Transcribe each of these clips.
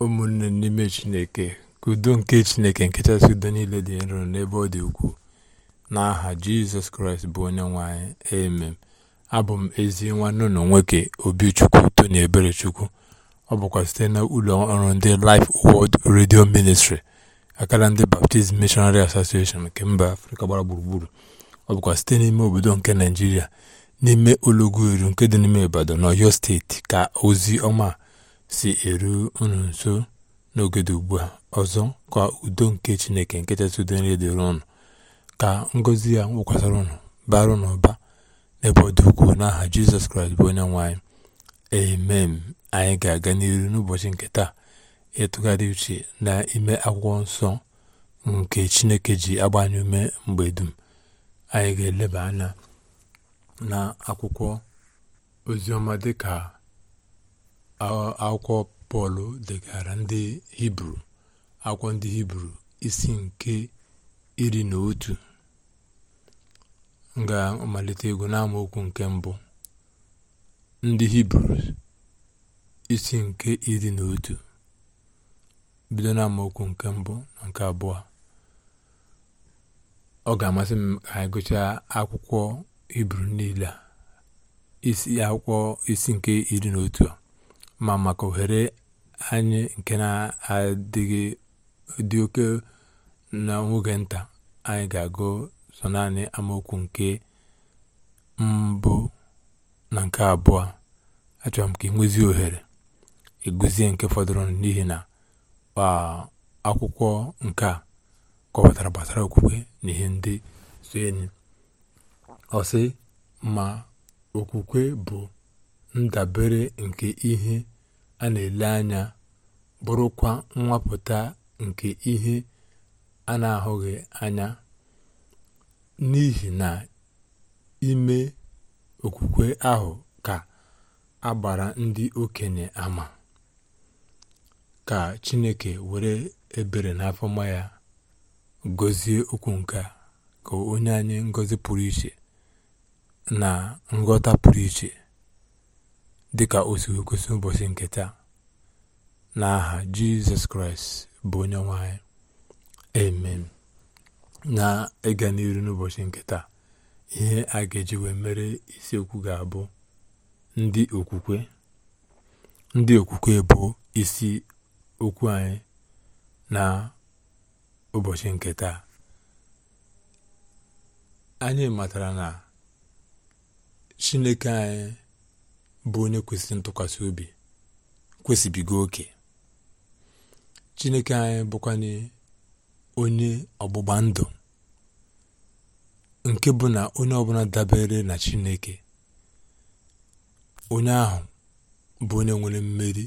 ụmụnne n'ime chineke kudo nke chineke nke chasị udo niile dị nro n'ebe ọ dị ukwuu n'aha jizọs kraịst bụ onye nwanyị emem amen abụ m ezi nwanne ụlọ nwoke obichukwu tony eberechukwu ọ bụkwa site na ụlọ ọrụ ndị Life Word redio ministri akara ndị Baptist Missionary Association nke mba afrịka gbara gburugburu ọ bụkwa site n'ime obodo nke naijiria n'ime olọgwu eru nke dị n'ime ibadan n'ọyọ steeti ka ozi ọma si eru unu nso n'oge dị ugbu a ọzọ ka udo nke chineke nke kachasị udo dịrị ka ngọzi ya nwụkwasara ụnụ bara unu ụba n'ebe ọ dị ukwuu n'aha jizọs kraịst bụ onye nwanyị anyị amen anyị ga-aga n'iru n'ụbọchị nke taa ịtụgharị uche n'ime akwụkwọ nsọ nke chineke ji agbanye ume mgbe dum anyị ga-eleba anya na akwụkwọ oziọma dịka akwụkwọ pọl degara ndị hibru akwụkwọ ndị hibru isi nke iri na otu ga-amalite egwu n'amaokwu nke mbụ ndị hibru isi nke iri na otu bido n'amaokwu nke mbụ na nke abụọ ọ ga-amasị m ka anyị gụchaa akwụkwọ hibru niile a isi akwụkwọ isi nke iri na otu a ma maka ohere anyị nke na-adịghị dị oke n'oge nta anyị ga-agụ so naanị amaokwu nke mbụ na nke abụọ achọrọ m ka ị ohere eguzie nke fọdụrụ n'ihi na akwụkwọ nke a kọwatara gbasara okwukwe na ihe ndị so enyi ọsị ma okwukwe bụ ndabere nke ihe a na-ele anya bụrụkwa nwapụta nke ihe a na-ahụghị anya n'ihi na ime okwukwe ahụ ka agbara ndị okenye ama ka chineke were ebere n'afọma ya gọzie okwu nke ka onye anyị ngozi pụrụ iche na nghọta pụrụ iche dịka o si kwesị ụbọchị nke taa n'aha jizọs kraịst bụ onye nwe anyị amen na-ịga n'iru n'ụbọchị nke taa ihe a ga-eji wee mere isiokwu ga-abụ ndị okwukwe ndị okwukwe bụ isi okwu anyị na ụbọchị nke taa anyị matara na chineke anyị bụ onye kwesịrị ntụkwasị obi kwesịbigo oke chineke anyị bụkwanye onye ọgbụgba ndụ nke bụ na onye ọbụla dabere na chineke onye ahụ bụ onye nwere mmeri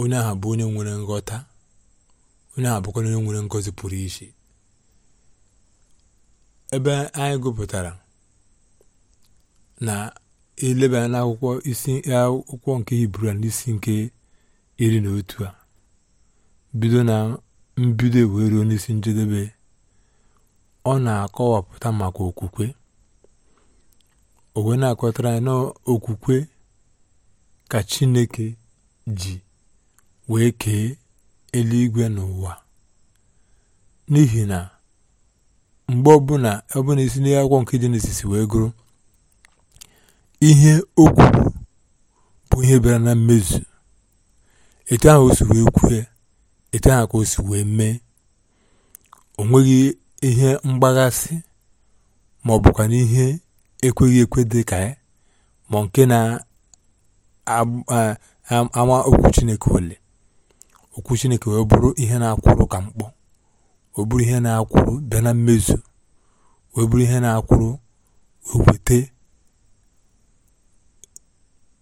onye ahụ bụ onye nwere nghọta onye ahụ bụkwa onye nwere ngọzi pụrụ iche ebe anyị gụpụtara na elebanye n'akwụkwọ isi akwụkwọ nke hibru n'isi nke iri na otu a bido na mbido e wee ruo n'isi njedebe ọ na-akọwapụta maka okwukwe owe na-akọtara anyị n'okwukwe ka chineke ji wee kee eluigwe n'ụwa n'ihi na mgbe ọbụla na isi n'akwụkwọ nke n'isisi wee gụrụ ihe o kwuru bụ ihe bịara na mmezu etu ahụ o si wee kwue etu ahụ ka o si wee mee o nweghị ihe mgbaghasị ma ọ bụkwa na ihe ekweghị ekwe dị ka ya ma nke na-ama okwu Chineke ole okwu Chineke wee bụrụ ihe na-akwụrụ ka mkpọ o bụrụ ihe na-akwụrụ bịa na mmezu wee bụrụ ihe na-akwụrụ wee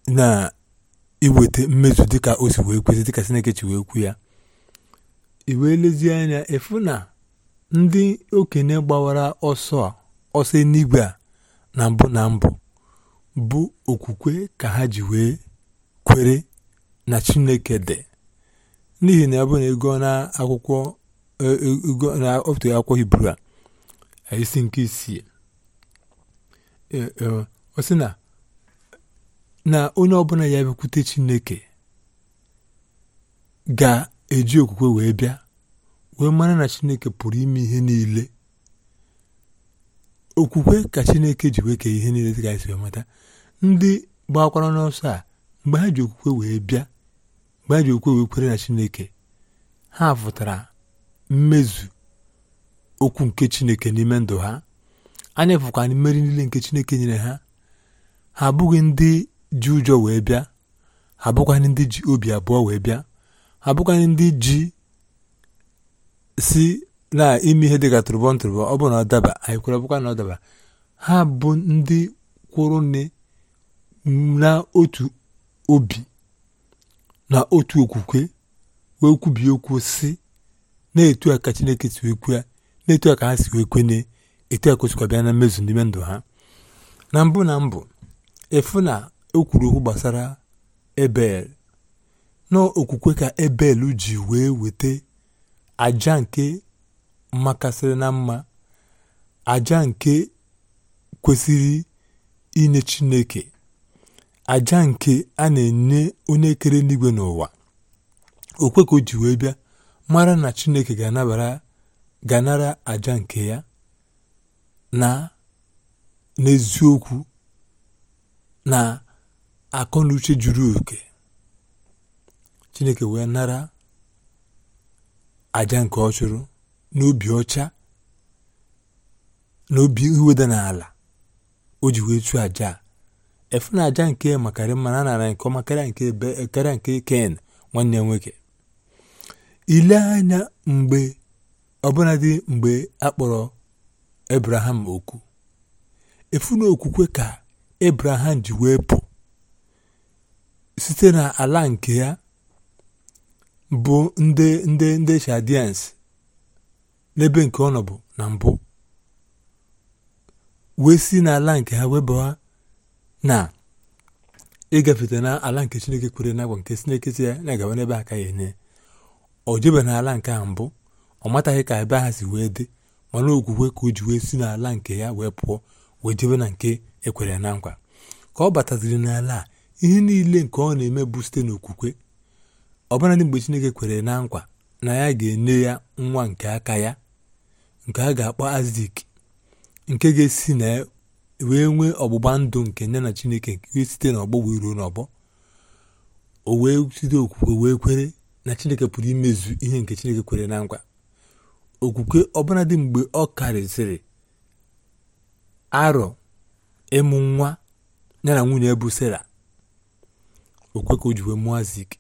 na-iweta mmezu dịka o si wee kwesị dịka Chineke chi wee kwu ya i wee lezie anya ịfụ na ndị okenye gbawara ọsọ ọsọ n'igwe a na mbụ na mbụ bụ okwukwe ka ha ji wee kwere na Chineke dị n'ihi na ya bụ na ego na akwụkwọ e, e, na otu akwụkwọ Hibru a isi nke isii e, ọ sị na na onye ọbụla ya bịakwute Chineke ga-eji okwukwe wee bịa wee mara na Chineke pụrụ ime ihe niile okwukwe ka Chineke ji wee kee ihe niile dịka anyị e si mata ndị gbakwara n'ọsọ a mgbe ha ji okwukwe wee bịa mgbe ha ji okwukwe wee na Chineke ha fụtara mmezu okwu nke Chineke n'ime ndụ ha anya fụkwa mmeri niile nke Chineke nyere ha ha abụghị ndị ji ụjọ wee bịa ha bụkwanị ndị ji obi abụọ wee bịa ha ndị ji si na ime ihe dịka tụrụbọ ntụrụbọ ọ bụ na ọ daba anyị kwere bụkwa na ha bụ ndị kwụrụ nne na otu obi na otu okwukwe wee okwu si na-etu aka chineke si wee kwue na-etu a ka ha si wee kwene etu a kwesịkwa bịa na mmezu n'ime ndụ ha na mbụ na mbụ o kwuru okwu gbasara Ebel n'okwukwe ka Ebel ji wee weta aja nke makasịrị na mma, aja nke kwesịrị inye Chineke, aja nke a na-enye onye kere n'igwe n'ụwa. Okwe ka o ji wee bịa mara na Chineke ga-anara aja nke ya na n'eziokwu na akọ na uche juru oke chineke wee nara aja nke ọ chụrụ n'obi ọcha n'obi iweda n'ala o ji wee chụọ aja efu na aja nke makarị mma a nara nke ọma karịa nke be karịa nke ken nwanne nwoke ile anya mgbe dị mgbe a kpọrọ ebraham okwu efu na okwukwe ka ebraham ji wee pụ site na ala nke ya bụ ndị ndị ndị Chaldeans n'ebe nke ọ nọbụ na mbụ wee si n'ala nke ha wee ha na ịgafete n'ala nke Chineke kwere n'agwa nke Chineke si ya na-agawa n'ebe aka ya enye O jebe ala nke ha mbụ ọ mataghị ka ebe ha si wee dị mana ka o ji wee si n'ala nke ya wee pụọ wee jebe na nke ekwere na nkwa ka ọ bataziri n'ala a ihe niile nke ọ na-eme bụ site n'okwukwe ọbụnadị mgbe Chineke kwere na nkwa na ya ga-enye ya nwa nke aka ya nke a ga-akpọ azik nke ga-esi na wee nwee ọgbụgba ndụ nke ya na Chineke nke site n'ọgbọ wee ruo n'ọgbọ o wee site okwukwe wee kwere na Chineke pụrụ imezu ihe nke Chineke kwere na nkwa okwukwe ọbụnadị mgbe ọ karịsịrị arọ ịmụ nwa ya na nwunye bụ Sera okwe ka o ji wee mụọ azik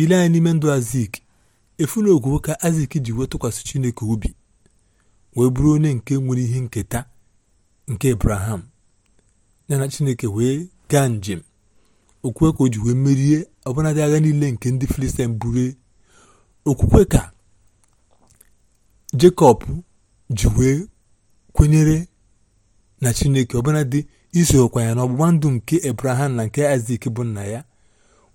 ile anyị n'ime ndụ azik efu na ka azik ji wee tụkwasị chineke obi wee bụrụ onye nke nwere ihe nketa nke abraham yana chineke wee gaa njem okwe ka o ji wee merie ọbụnadị agha niile nke ndị filistin buru okwukwe ka jekọb ji wee kwenyere na chineke ọbụnadị isokwa ya na ọgbụgba ndụ nke abraham na nke isak bụ nna ya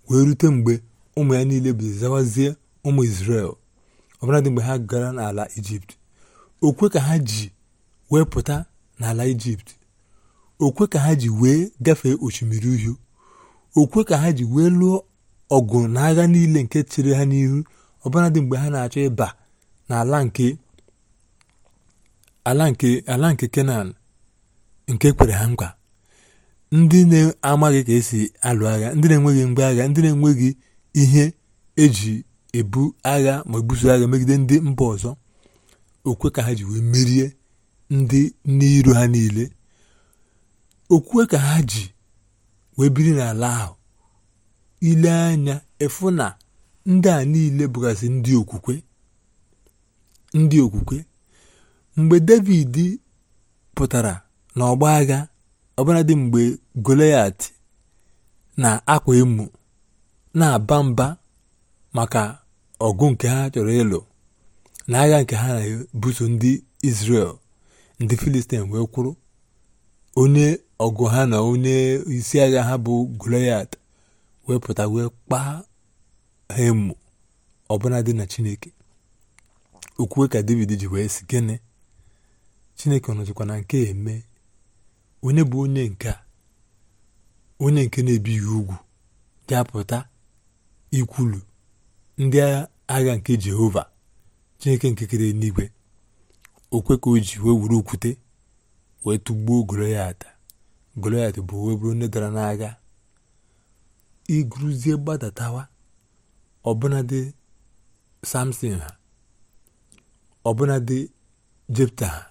wee rute mgbe ụmụ ya niile bụ zawazie ụmụ Izrel ọbụladị mgbe ha gara n'ala Ijipt okwe ka ha ji wee pụta n'ala Ijipt okwe ka ha ji wee gafee osimiri uhie okwe ka ha ji wee lụọ ọgụ na agha niile nke chere ha n'ihu ọbụladị mgbe ha na-achọ ịba n'ala nke ala nke ala nke Kenan nke kwere ha nkwa ndị na-amaghị ka esi alụ agha ndị na-enweghị mgbe agha ndị na-enweghị ihe eji ebu agha ma ebuso agha megide ndị mba ọzọ okwe ka ha ji wee merie ndị n'iro ha niile okwe ka ha ji wee biri n'ala ahụ ile anya efu na ndị a niile bụgasị ndị okwukwe ndị okwukwe mgbe david pụtara n'ọgba agha ọbụladị mgbe Goliath na-akwa emu na-aba mba maka ọgụ nke ha chọrọ ịlụ na agha nke ha na-ebuso ndị Israel ndị Filistin wee kwụrụ onye ọgụ ha na onye isi agha ha bụ Goliath wee pụta wee kpaa ha emu ọbụladị na Chineke okwue ka David ji wee si gịnị Chineke ọ na nke eme onye bụ onye nke onye nke na-ebighị ugwu ga ikwulu ndị agha nke jehova chineke nke kere n'igwe okwe ka o ji wee wuru okwute wee tụgbuo goloyat goloyat bụ wee bụrụ onye dara n'agha igruzie gbadatawa ọbụnadị samson ha ọbụnadị jepta ha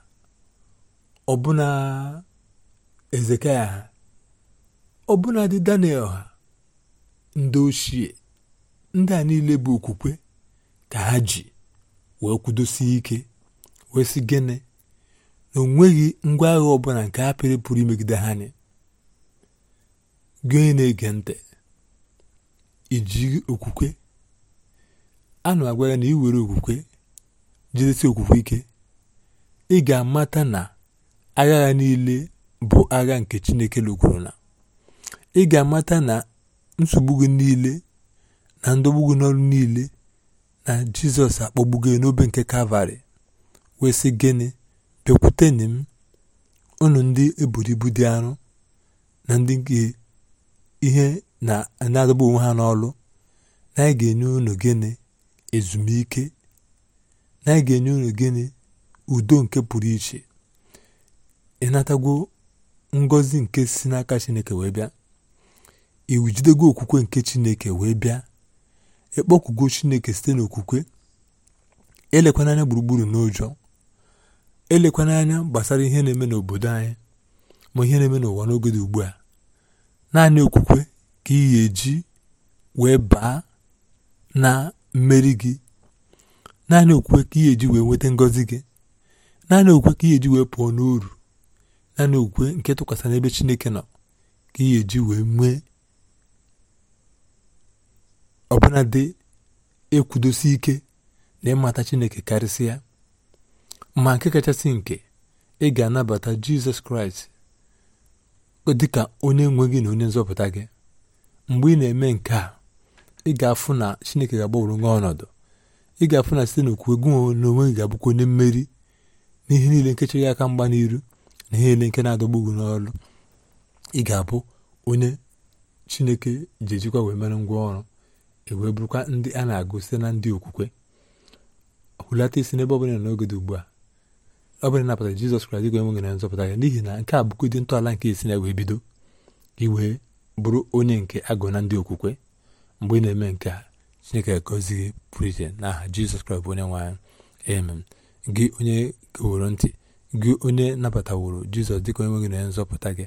ọbụna ezekaya ọbụnadị daniel ha ndị ochie ndị a niile bụ okwukwe ka ha ji wee kwudosie ike wee sị gịnị na o ngwa agha ọbụla nke ha pịrị pụrụ imegide ha nị gị na-ege ntị iji okwukwe a na-agwa ya na iwere okwukwe jidesi okwukwe ike ị ga-amata na agha ha niile bụ agha nke Chineke lụgoro na, ị ga-amata na nsogbu gị niile na ndọgbu gị n'ọrụ niile na Jizọs akpọgbugo n'obe nke Kalvarị wee sị gịnị bịakwutenị m ụnụ ndị eburu ibu dị arọ na ndị nke ihe na-adọgbu onwe ha n'ọrụ na anyị ga-enye unu gịnị ezumike na anyị ga-enye unu gịnị udo nke pụrụ iche ịnatagwo Ngozi nke si n'aka chineke wee bịa iwu jidego okwukwe nke chineke wee bịa ịkpọkugo chineke site n'okwukwe elekwana anya gburugburu n'ụjọ elekwana anya gbasara ihe na-eme n'obodo anyị ma ihe na-eme n'ụwa n'oge dị ugbu a naanị okwukwe ka ị ga wee baa na mmeri gị naanị okwukwe ka ị ga wee nweta ngọzi gị naanị okwukwe ka ị ga-eji wee pụọ n'uru naanị okwukwe nke tụkwasị n'ebe chineke nọ ka ị ga-eji wee nwee ọbụna ekwudosi ike na ịmata chineke karịsịa ma nke kachasị nke ị ga-anabata jizọs kraịst dị ka onye nwe gị na onye nzọpụta gị mgbe ị na-eme nke a ị ga-afụ na chineke ga-agbanwere nwa ọnọdụ ị ga-afụ na site n'okwu egwu na onwe gị ga-abụkwa onye mmeri n'ihe niile nkechi gị aka mgba n'iru n'ihe niile nke na-adọgbu ugwu n'ọrụ ị ga-abụ onye chineke ji ejikwa wee mere ngwa ọrụ ewee bụrụkwa ndị a na-agụ site na ndị okwukwe hulata isi n'ebe ọbụla n'oge dị ugbu a ọ bụla napụta jizọs kraịst ga enweghị na nzọpụta ya n'ihi na nke a bụkwa dị ntọala nke esi na wee bido gị wee bụrụ onye nke agụ na ndị okwukwe mgbe ị na-eme nke a chineke gozighị pụrụ na n'aha jizọs kraịst bụ onye nwanyị anyị amen gị onye goworo ntị gị onye nabataworo jizọs dịka onye nwe gị na nzọpụta gị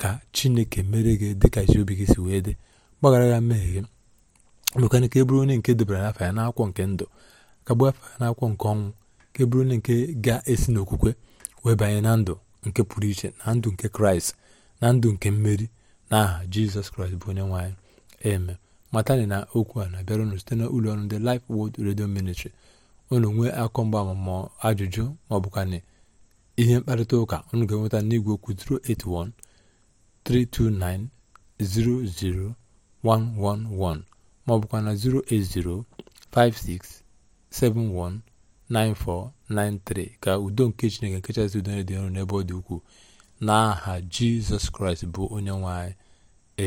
ka chineke mere gị dịka isi obi gị si wee dị gbaghara ya mmehie gị mekana ka e onye nke debara n'afọ ya n'akwụkwọ nke ndụ ka gbuo afọ ya n'akwụkwọ nke ọnwụ ka e onye nke ga-esi n'okwukwe wee banye na ndụ nke pụrụ iche na ndụ nke kraịst na ndụ nke mmeri na aha jizọs kraịst bụ onye nwaanyị eme matani na okwu a na-abịara unu site na ụlọ ọrụ ndị Life Word Radio Ministry unu nwee akọ mgba ma ajụjụ ma ọ ihe mkparịta ụka unu ga-enweta n'igwe okwu 081 329 00111 maọbụkwa na 080 5671 9493 ka udo nke chineke nkechasị udo dị ọrụ n'ebe ọ dị ukwuu n'aha jizọs kraịst bụ onye nwe anyị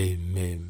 amen